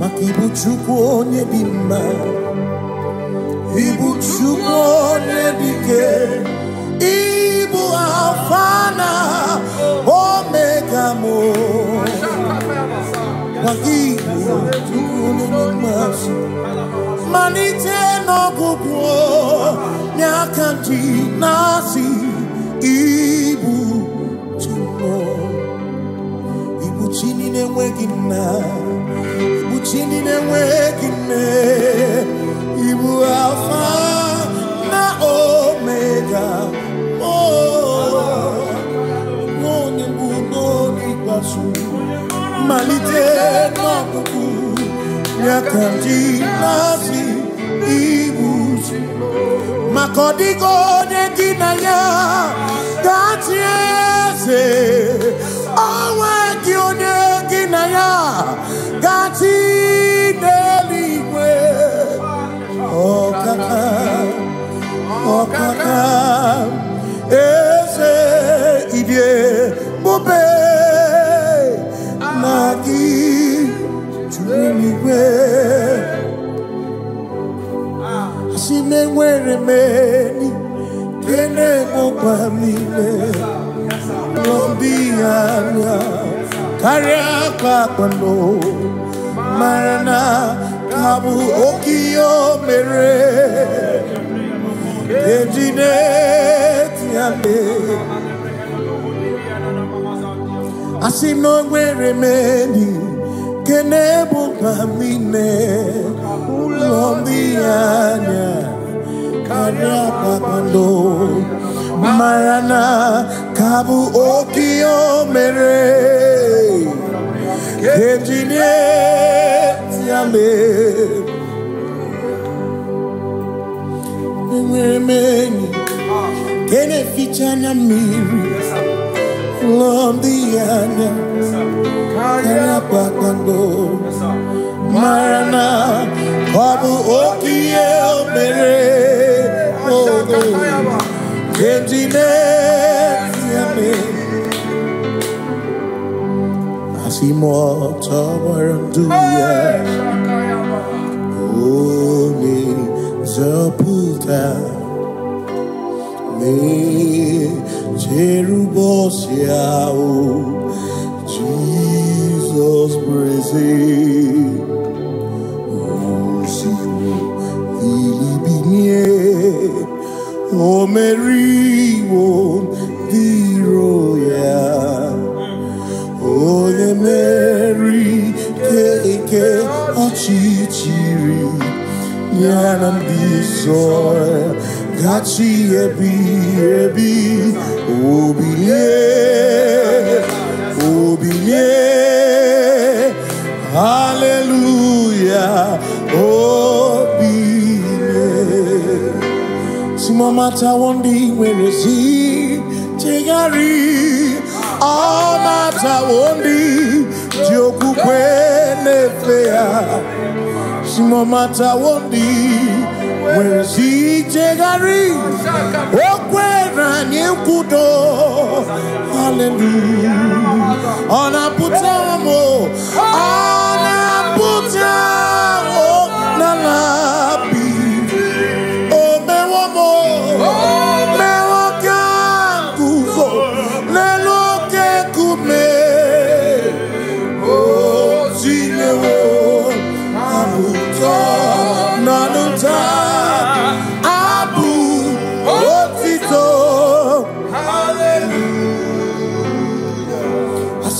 Mak ibuchukwu onye dị mma ibuchukwu onye dike ịbụ afana na omega m maka igbo chukwu onye dị mma malite n'ọgwụgwụ n'aka ji na-asị ibu chukwu ibu chi ne enweghị nna uchindine wekine ibu alfa na omega mone mbuno n'ikpeazụ malite n'ọkpụkpụ nyaka ndị nazi ibu maka ọdịgo onye ya gatie ọkaka eze ibie bube na gị juru n'igwe asị na-enwere m eni kene gbụkwa m ime ya anya karịa akwa akpano mara na ka bụ oke ihe o mere ejide ti ale asi n'onwere m enyi nke na-ebu mkpa m ine ụlọ ndị anya karịa mere ejide ti remeni tene fichana miri lomdiana kana bakando marana kabu okie omere ogo kenjine yame asimo tabaranduya Oh zapulta me cherubosiao oh, Jesus praise O Senhor, o nam disor Gachi ebi ebi Obiye Obiye Hallelujah Obiye Simamata wondi werezi Tegari Amata wondi Dioku kwenefea Simamata wondi nwere si ichegharị okwere anyị nkwudo haleluya ọ ọ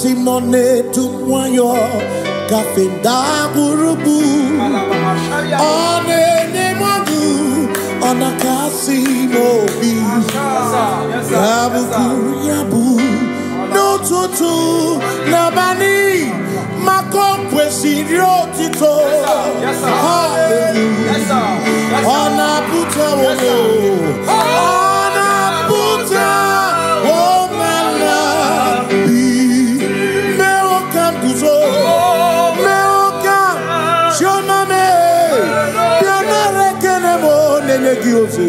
simone tu kafenda gurubu onene mwangu ona kasimo bi yabuku yabu n'ụtụtụ nabani maka o kwesịrị otito ọ tu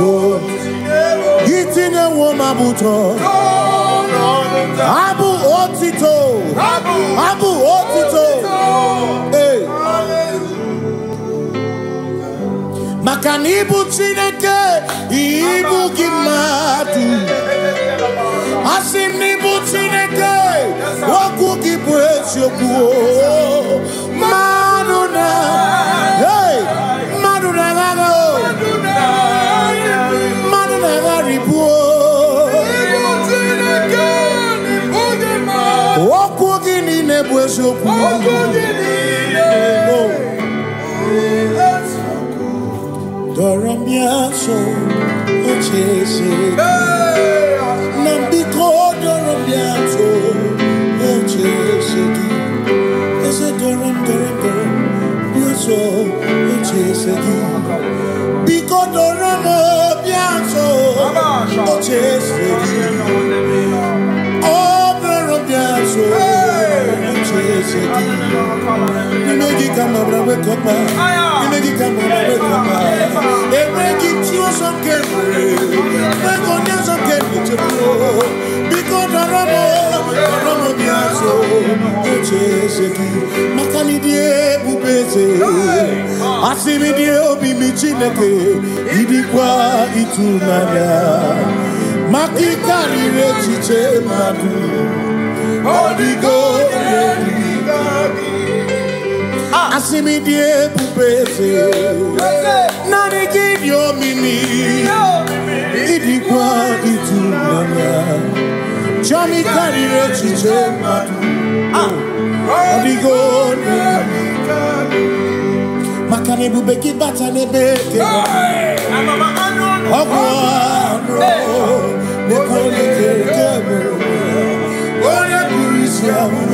oh itinye nwo ma bụ tọ abụ otito abụ otito ee maka na ịbụ chineke ịbụ gị mmadụ asị m na ịbụ chineke okwu gị bụ eziokwu mmadụ na Dorombiaso, o chese. Nambiko dorombiaso. come around with come You make it come around with come They make it to some get Make on your some get me to go Because I run on I run on the aso Eche seki Makani die ubeze Asimi die obi mi chineke Idi kwa itunanya Makikari rechiche madu Holy Ghost asimidie kubeze nani kivyo mimi idikwa itunanga chami karire chiche matu odigoni makane bubeki bata nebeke ogwano nekonekekebe onye kurisi ahụrụ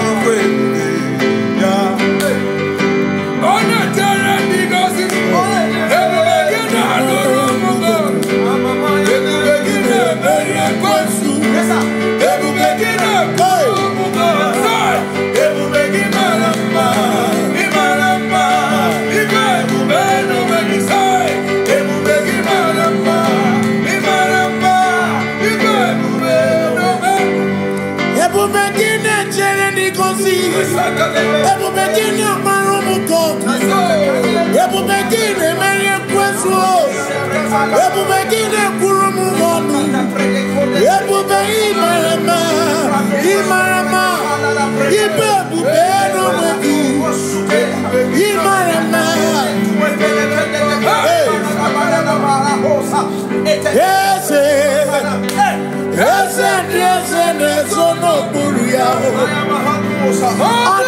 begin your Yes, yes, yes, yes, yes, yes, yes, yes, yes, yes,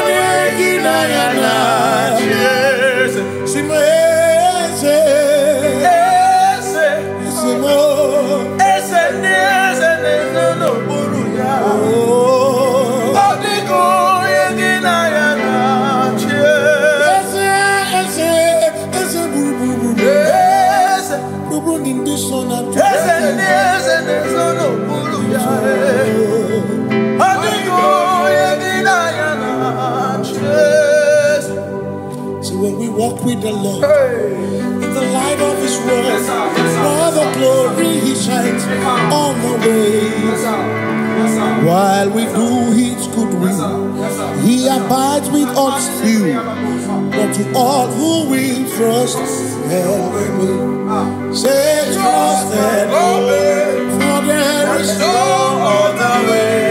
ganar. with the Lord. Hey. In the light of His word, yes, yes, while the glory He shines on the way. while we do His good will, He abides with us still. But to all who will trust and obey, say trust and obey, for there is no other way.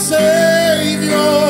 Savior.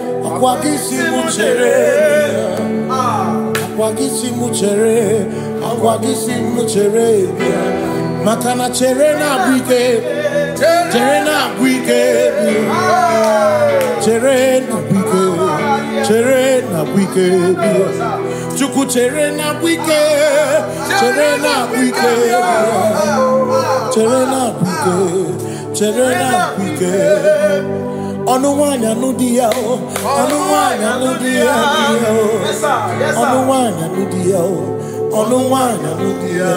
agwagisimu chere agwagisimu chere agwagisimu chere maka cherena chere na-abụ ike chere na-abụ ike cherena na cherena ike chere na-abụ ike ọnụ nwanyị anụ di ya o ọnụ nwanyị anụ di ya o ọnụ nwanyị anụ di ya o ọnụ nwanyị anụ di ya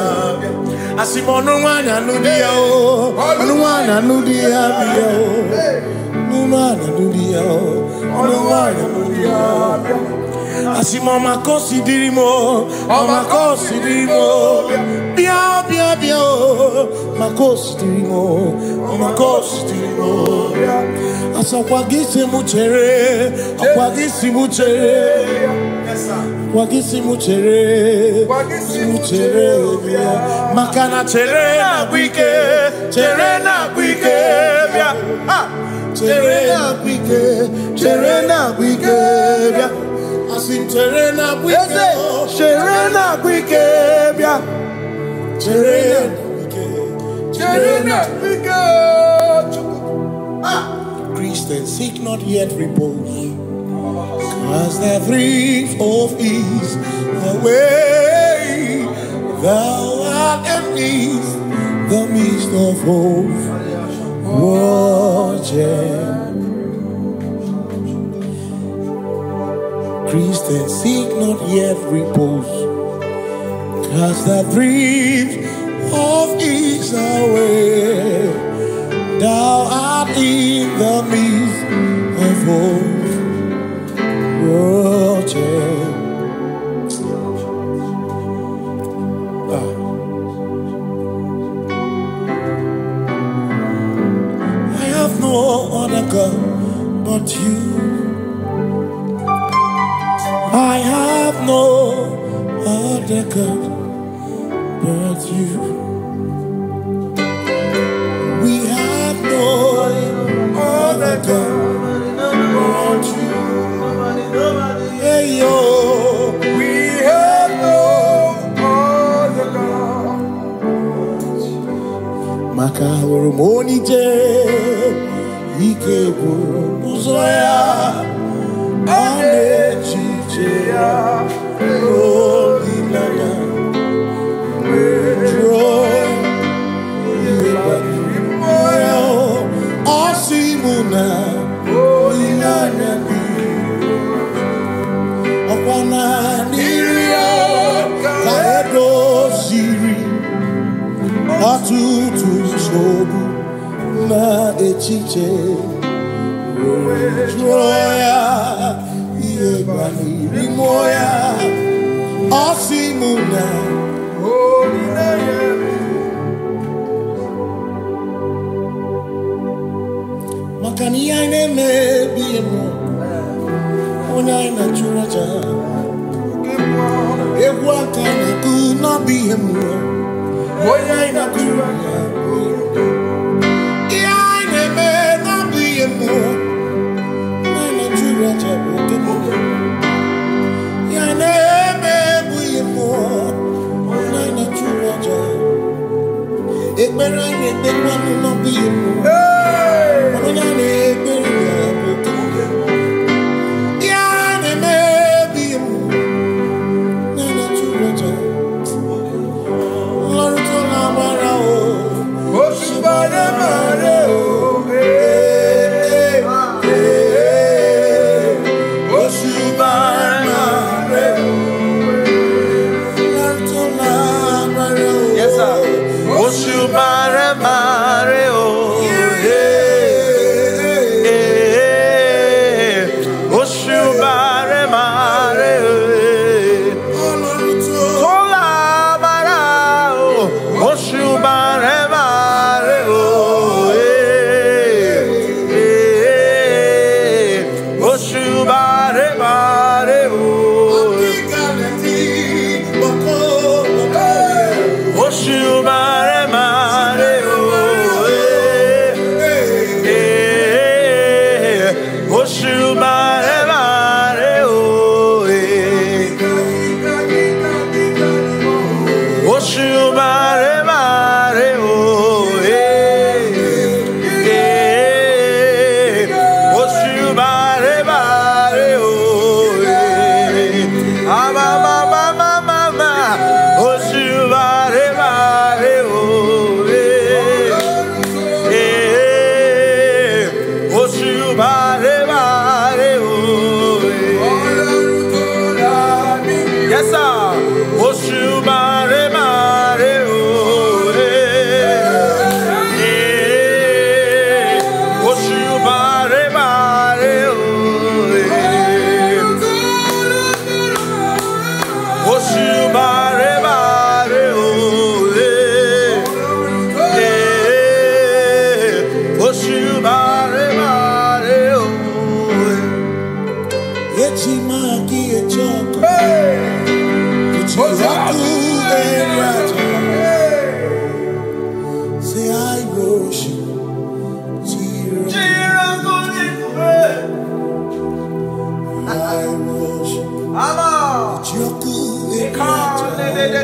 asị ọnụ nwanyị anụ di ya o ọnụ nwanyị anụ di ya bịa o ọnụ nwanyị anụ di ya o ọnụ nwanyị anụ di ya bịa Asi mama considere mo, mama considere mo. Bia bia bia, mama considere mo, mama considere mo. Asa wagisi muchere, wagisi muchere. Wagisi muchere, wagisi muchere. Makana chere na buike, chere na buike. Bia, ah, chere na buike, chere na buike. Bia si ah, seek not yet repose Cause the thrift of ease The way thou art at ease The midst of hope Watch priests that seek not yet repose. Cast that breeze of ease away. Thou art in the midst of hosts. Roger. Ah. I have no other God but you. Yane me oh, be mo Unai oh, na churaja Ewa kane ku na be mo Unai na churaja Yane me na be mo Unai na churaja Oke mo Yane me be mo Unai oh, na churaja Ekbera yane me na be mo Unai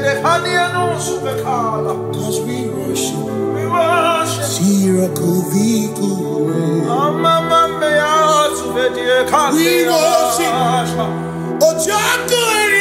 Cause we worship. We worship. Miracle We worship. Ojo akuri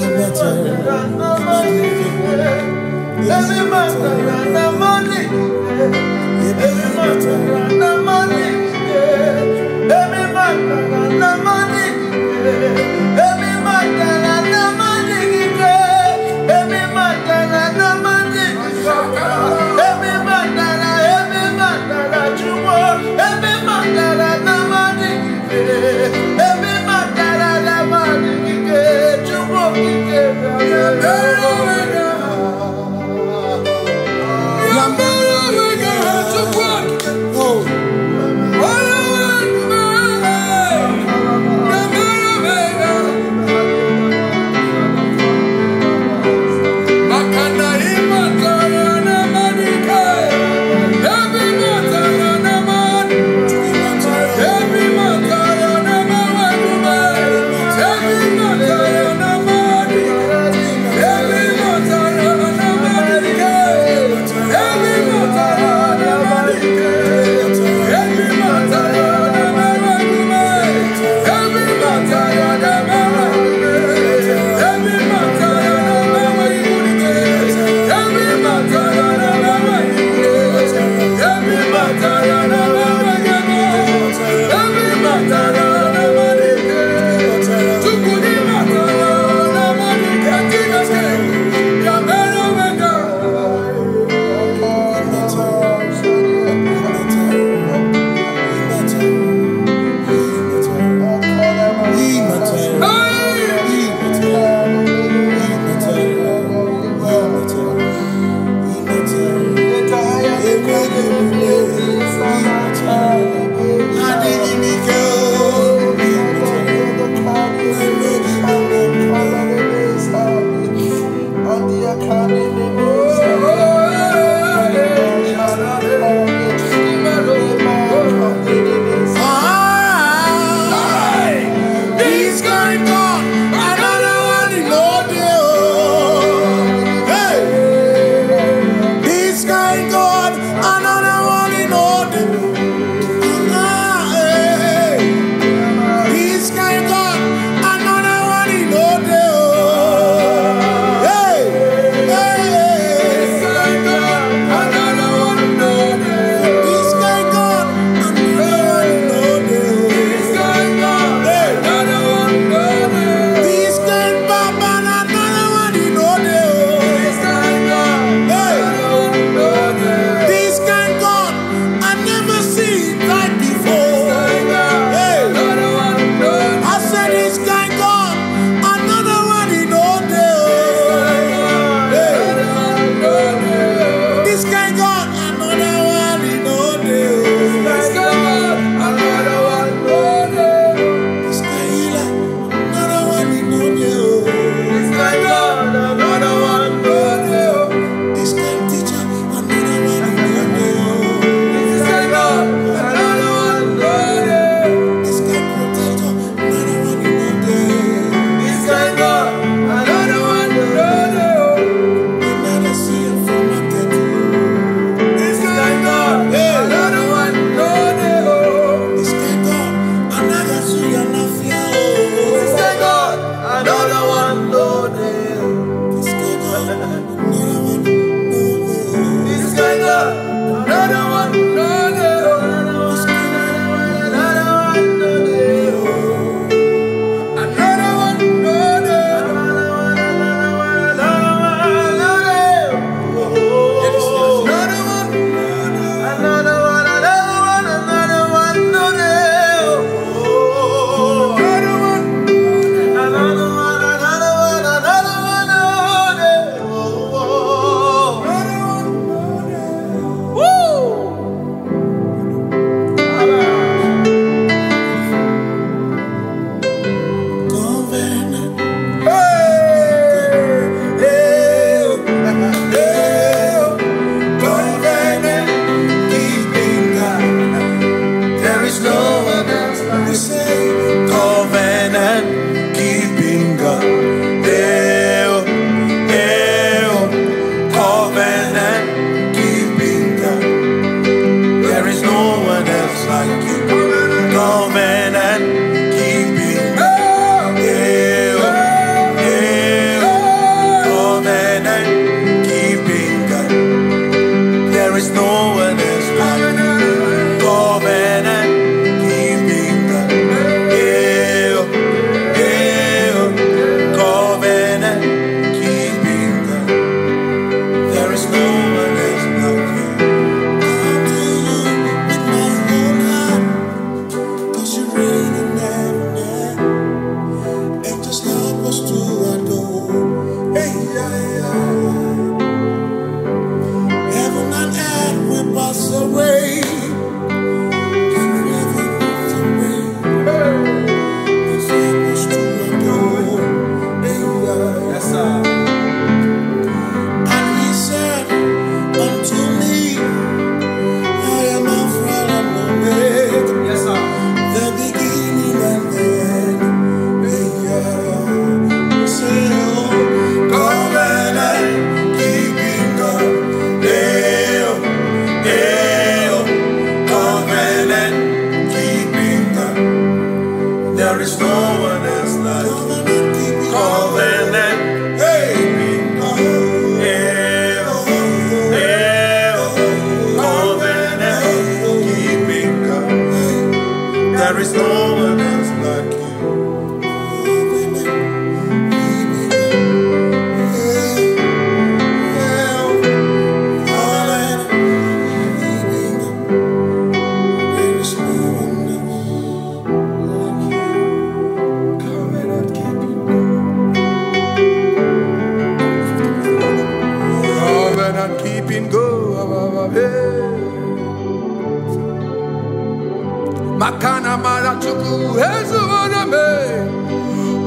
me better. Every man run money. Every man money. Every man money.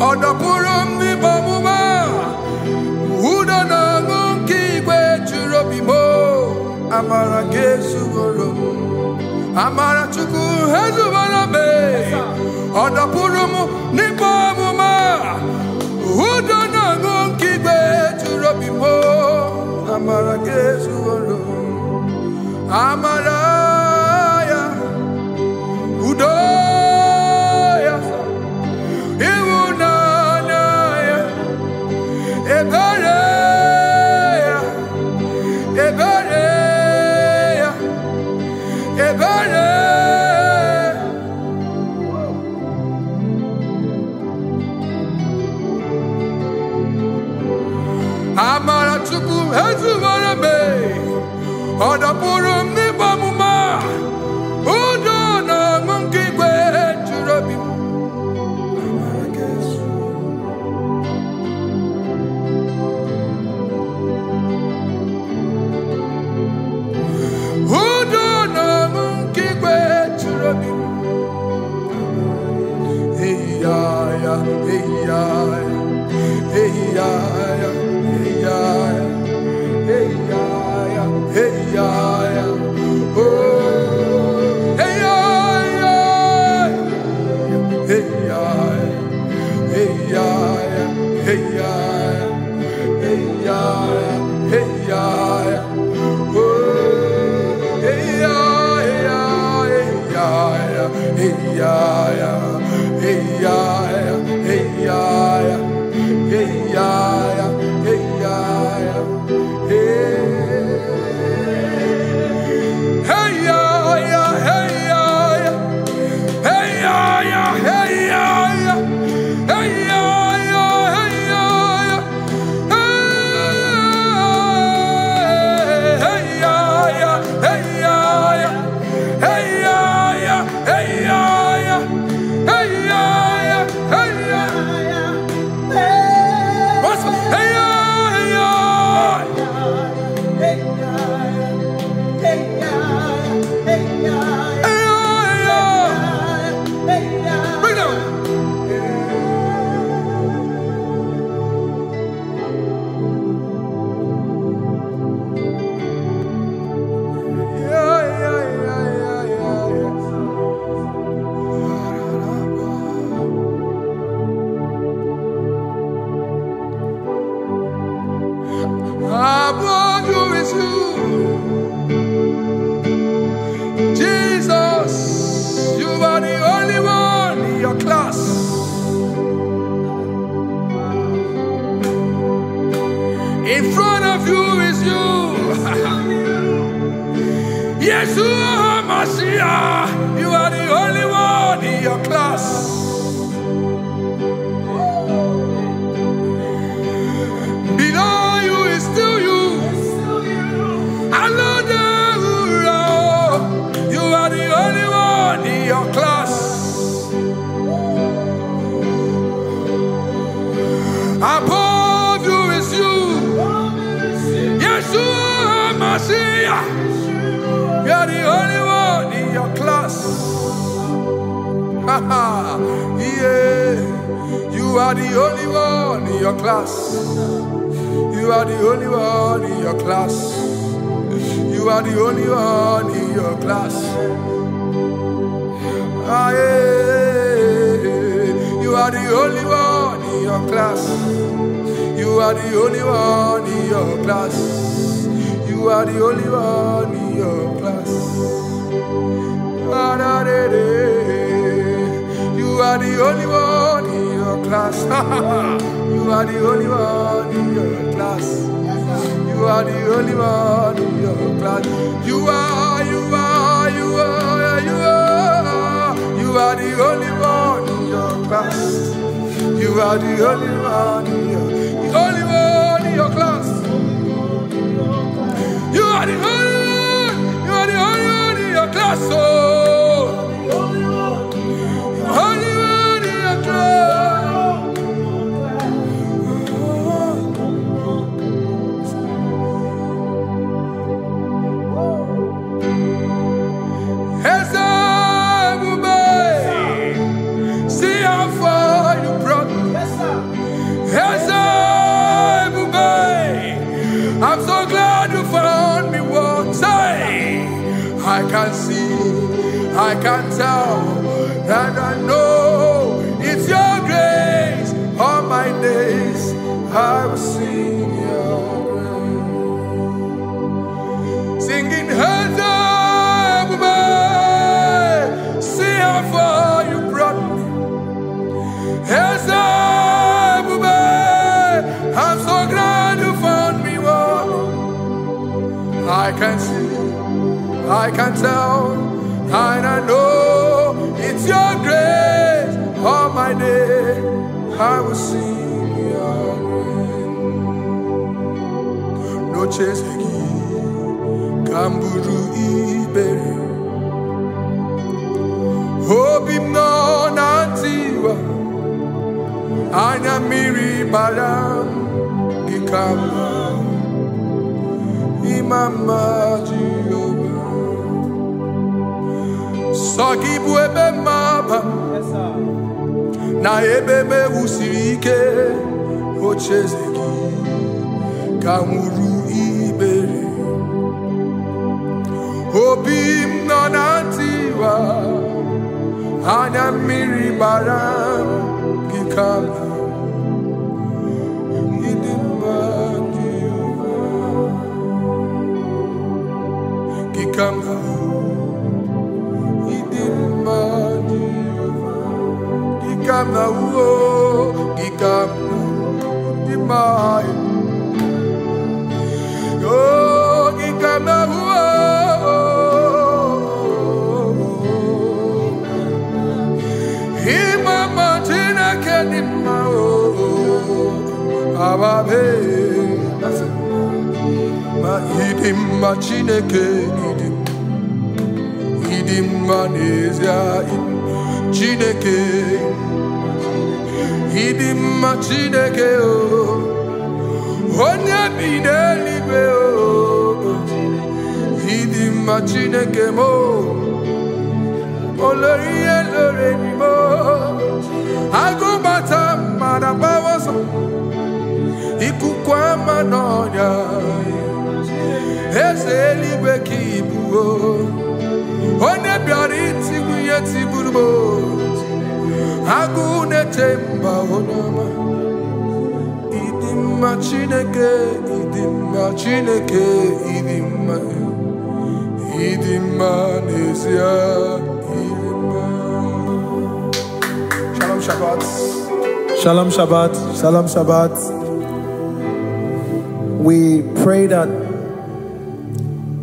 ọdọkwuru m ọmụma udo na ọṅụ nke igwe juru obi m amara gị ezuworo m amara chukwu ezubere m ọdọkwuru m yeah. You are the only one in your class. You are the only one in your class. You are the only one in your class. Ah, yeah. You are the only one in your class. You are the only one in your class. You are the only one in your class. are the only one in your class. you are the only one in your class. You are the only one in your class. You are, you are, you are, you are. You are the only one in your class. You are the only one in your, the only one in your class. You are the only one. You are the only one in your class. Oh. can see, I can tell, and I know it's your grace. All my day, I will sing your name. Noches aqui, camburu e beri. Hobim no I anya miri baram gikamba mama Jehova sagibu ebe mama na ebebe usirike, wusiri ike ocheze gị ka ibere obi m nọ na ntịwa anya mmiri gbara come now. He didn't mind you. He come now. Oh, he come now. He mind. Oh, he come now. Hima Martina Kenima. Oh, ababe. Ma idim ma chineke idim ndị mma n'ezie Chineke ịdị mma Chineke o onye bi n'eluigwe o ịdị mma Chineke m olori ihe lore mo agụbata mara gbawa ọsọ ikuku ama n'ọnya eze eluigwe ka ibuo chineke chineke shalom shabbat shalom shabbat shalom shabbat we pray that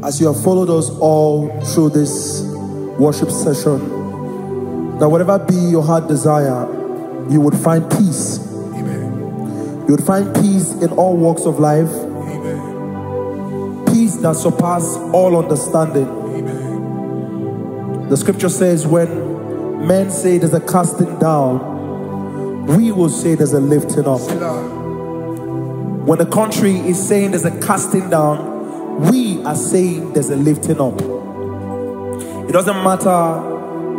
as you have followed us all through this worship session that whatever be your heart desire, you would find peace. Amen. You would find peace in all walks of life. Amen. Peace that surpasses all understanding. Amen. The scripture says, when men say there's a casting down, we will say there's a lifting up. When the country is saying there's a casting down, we are saying there's a lifting up doesn't matter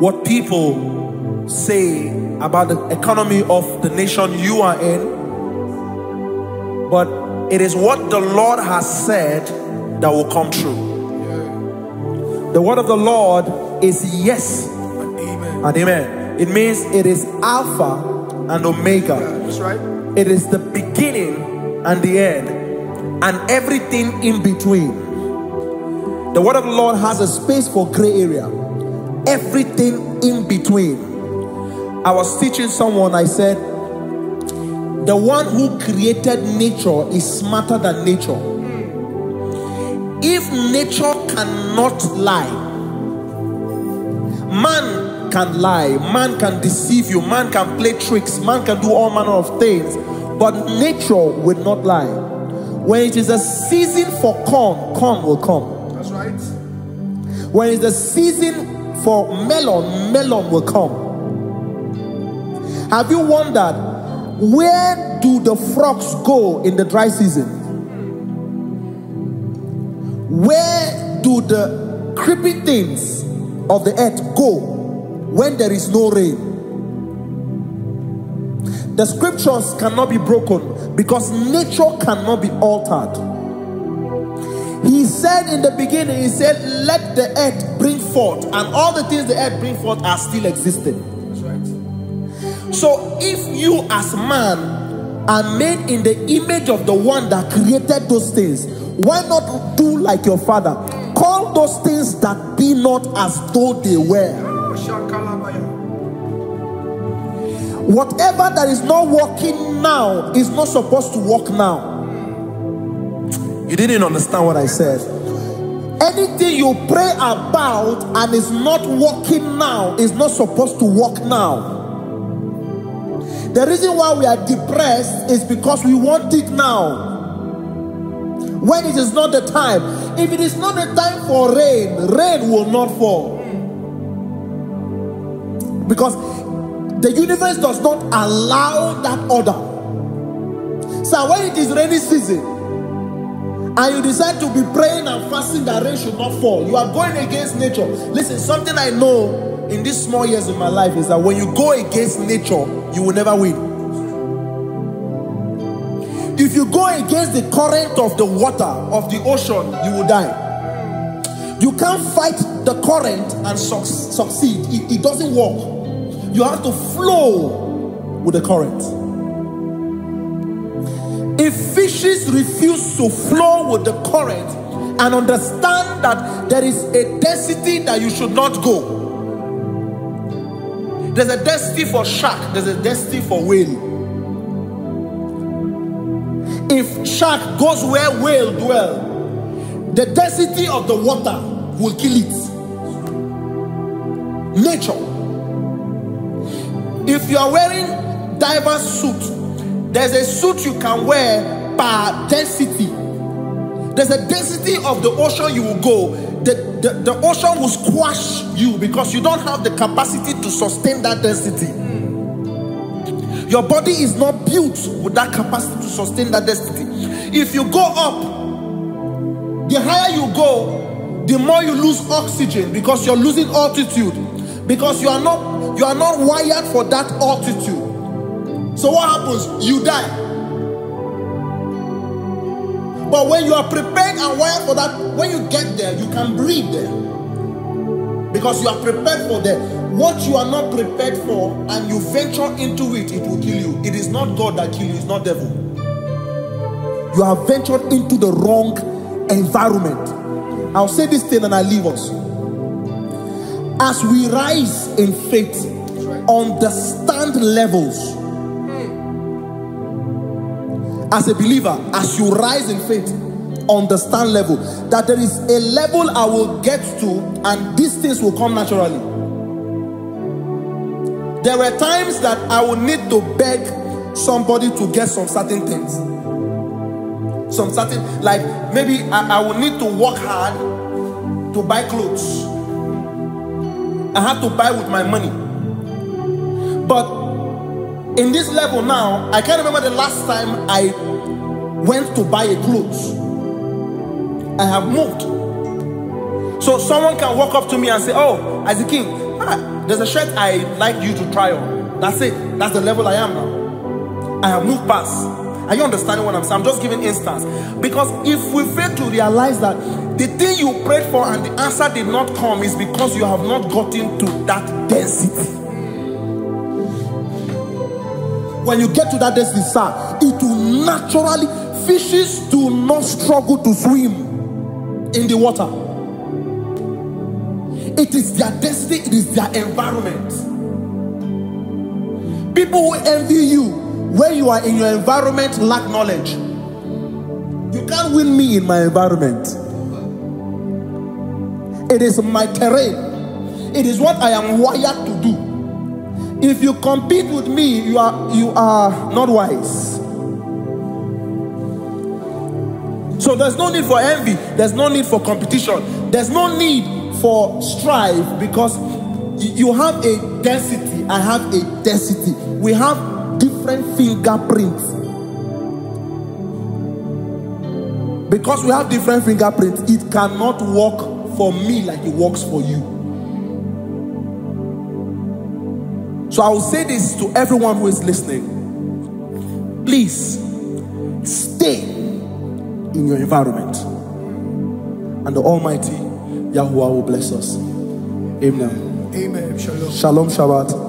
what people say about the economy of the nation you are in, but it is what the Lord has said that will come true. The word of the Lord is yes and amen. And amen. It means it is Alpha and Omega. Yeah, that's right. It is the beginning and the end, and everything in between. The word of the Lord has a space for gray area. Everything in between. I was teaching someone, I said, the one who created nature is smarter than nature. If nature cannot lie, man can lie, man can deceive you, man can play tricks, man can do all manner of things, but nature will not lie. When it is a season for corn, corn will come. When it's the season for melon, melon will come. Have you wondered where do the frogs go in the dry season? Where do the creepy things of the earth go when there is no rain? The scriptures cannot be broken because nature cannot be altered. He said in the beginning, He said, Let the earth bring forth, and all the things the earth bring forth are still existing. That's right. So if you as man are made in the image of the one that created those things, why not do like your father? Call those things that be not as though they were. Whatever that is not working now is not supposed to work now. You didn't understand what I said. Anything you pray about and is not working now is not supposed to work now. The reason why we are depressed is because we want it now. When it is not the time. If it is not the time for rain, rain will not fall. Because the universe does not allow that order. So when it is rainy season, and you decide to be praying and fasting that rain should not fall, you are going against nature. Listen, something I know in these small years of my life is that when you go against nature, you will never win. If you go against the current of the water of the ocean, you will die. You can't fight the current and su succeed, it, it doesn't work. You have to flow with the current. If fishes refuse to flow with the current and understand that there is a destiny that you should not go, there's a destiny for shark, there's a destiny for whale. If shark goes where whale dwell, the density of the water will kill it. Nature. If you are wearing diver suit there's a suit you can wear per density. There's a density of the ocean you will go. The, the, the ocean will squash you because you don't have the capacity to sustain that density. Your body is not built with that capacity to sustain that density. If you go up, the higher you go, the more you lose oxygen because you're losing altitude. Because you are not you are not wired for that altitude. So what happens? You die. But when you are prepared and wired for that, when you get there, you can breathe there. Because you are prepared for that. What you are not prepared for and you venture into it, it will kill you. It is not God that kills you, it's not devil. You have ventured into the wrong environment. I'll say this thing and I leave us. As we rise in faith, right. understand levels as a believer, as you rise in faith, understand level. That there is a level I will get to and these things will come naturally. There were times that I would need to beg somebody to get some certain things. Some certain, like maybe I, I would need to work hard to buy clothes. I had to buy with my money. But in this level now, I can't remember the last time I went to buy a clothes. I have moved. So someone can walk up to me and say, Oh, as a king, ah, there's a shirt i like you to try on. That's it. That's the level I am now. I have moved past. Are you understanding what I'm saying? I'm just giving instance. Because if we fail to realize that the thing you prayed for and the answer did not come is because you have not gotten to that density. When you get to that desert, it will naturally, fishes do not struggle to swim in the water. It is their destiny, it is their environment. People who envy you where you are in your environment lack knowledge. You can't win me in my environment. It is my terrain. It is what I am wired to do. If you compete with me, you are, you are not wise. So there's no need for envy. There's no need for competition. There's no need for strife because you have a density. I have a density. We have different fingerprints. Because we have different fingerprints, it cannot work for me like it works for you. So I will say this to everyone who is listening. Please stay in your environment. And the Almighty Yahweh will bless us. Amen. Amen. Shalom. Shalom Shabbat.